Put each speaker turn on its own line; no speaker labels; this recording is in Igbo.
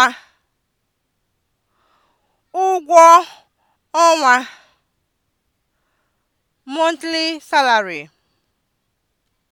ọnwa ụgwọ ọnwa (monthly salary)